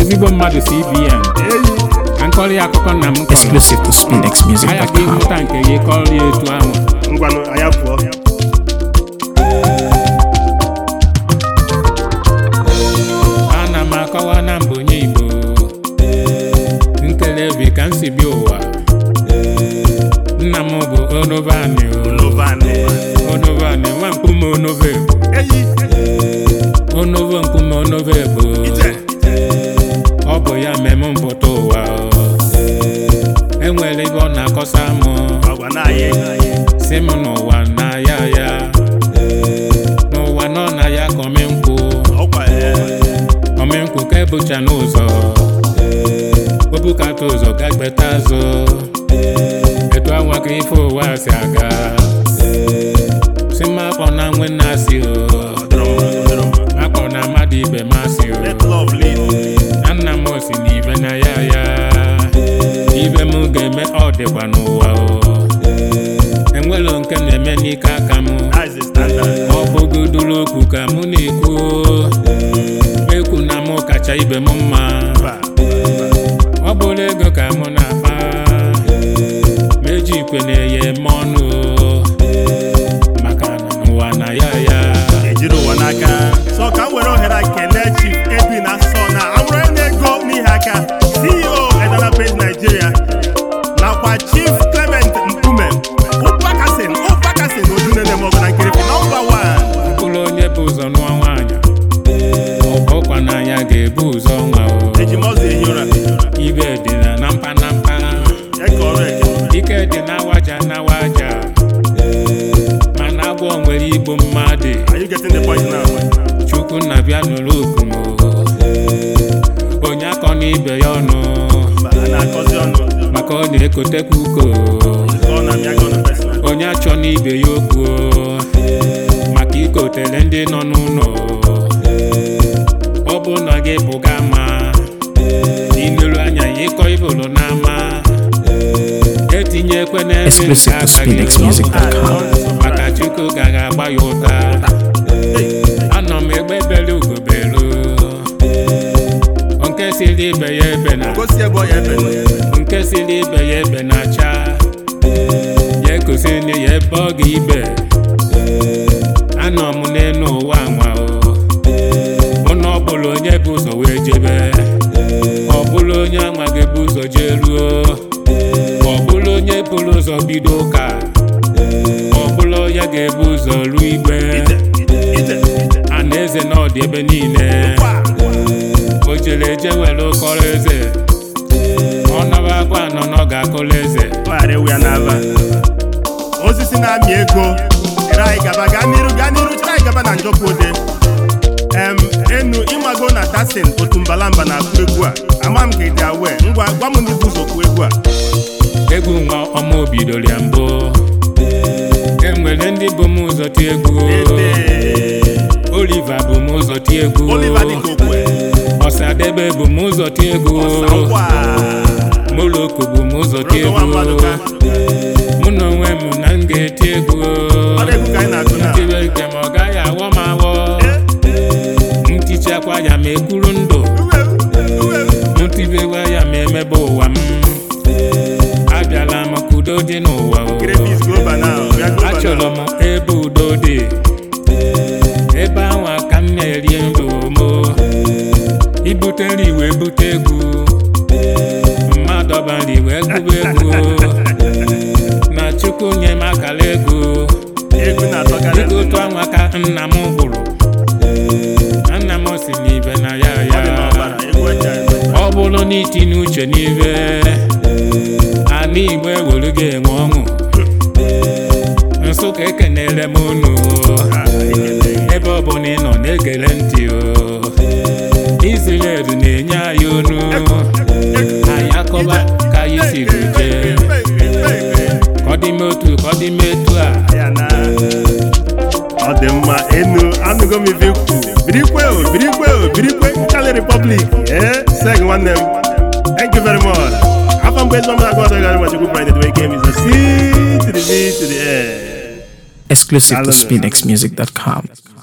ezigbo mmadụ cbn akụkọ nna m exclusive to spinx music.com anyị ịhụta nke gị kọrọ ya etu ahụ ngwanụ anyị pụọ eyi onovo nkume onovo ebo ọ bụ ya mmemme mpụta ụwa enwere ibe ọ na-akọsa m si m n'ụwa na ya ya n'ụwa nọ na ya ka omenkwụ omenkwụ ka ebucha n'ụzọ obukata ụzọ gbeta azụ etu anwa ka ife ụwa si aga akpọ na nwe na-asị akpọ na mmadụ ibe masị na nna m osi na ibe na ya ya ibe m ga-eme ọ dịkwa n'ụwa enwelo nke na-eme n'ike aka m ọ bụgodoro okwu ka mụ na-ekwu ekwu na mụ kacha ibe m mma ọ bụrụ ego ka mụ na-akpa meji ikwe na-eye eme nakwa chief Clement Mkpume ụkpakasin ụkpakasin odunele maọbụ na nkirịpị nọmba wan mkpụrụ onye bụ ụzọ nụọ nwaanyị ọkwa n'anya ga-ebu ụzọ nwa ejimọzọ ehi ụra ibe dị na mpanampa ike dị n'awaja n'awaja mana agwọ nwere igbo mmadụ chukwu na bịa nụrụ oku onye akọ n'ibe ya ọnụ ka ọ na-ekotekwa uko onye achọ n'ibe ya okwu maka ikotele ndị nọ n'ụlọ ọ bụ na gị bụga ama n'ineru anya ya ịkọ ibụlụ n'ama etinyekwe n'ebe nke abaghị maka chukwu gaghị agba ya ụta anọ m egbebere ugobelu nke siri ibe ya ebe na onye ibe ya ebe na-acha ya na ya ebe ọ ga ibe anọ m n'elu ụwa nwa mụ na ọ bụla onye bụ ụzọ wee jebe ọ bụla onye gị bụ ụzọ jee ruo ọ bụla onye bụrụ ụzọ bido ụka ọ bụla onye ga-ebu ụzọ ruo igbe a eze na ọdị ebe niile o jere eje were ụkọrọ eze ga-akụla eze tụgharị ewu ya n'ala osisi na-amị ego ere anyị gaba gaa n'iru gaa n'iru chere anyị gaba na njọpụode em enu ịmago na tasin otu mbala mba na akpụ egwu a ama m ka ị dị awe ngwa gwa m n'ibu ụzọ kụọ egwu a egwu nwa ọma obi dolia mbụ enwere ndị bụ m ụzọ ti egwu Oliva bụ m ụzọ ti egwu Ọsadebe e. bụ m ụzọ ti egwu moloko bụ m ụzọ ka egwu mụ na onwe m na m ga-eti egwu ntibeke ma ọ gaghị awọ m awọ ya ma ekwuru ndụ ntibewa ya ma emebe ụwa m abịala m ka udo dị n'ụwa achọrọ m ebe udo dị ebe ahụ ka m na-eri ndụ m ibute nri wee bute egwu ọbandị wee gụba ego na chukwu nye m akara ego ego otu anwa ka nna m hụrụ. nna m si n'ibe na ya ya ọ bụrụ na itinye uche n'ibe ana igbo ewere gị enwe ọṅụ nsụka ekenere m unu ebe ọ bụla ị nọ na-egere ntị o Israel na-enye anyị onu dị mma enu anụgo m ife ikwu birikwe o birikwe o birikwe nkali republic ee eh, seg nwanne m thank you very much afọ mgbe ezigbo mmadụ agụọdọ gara machukwu friday the way game is a c to the b exclusive to spinxmusic.com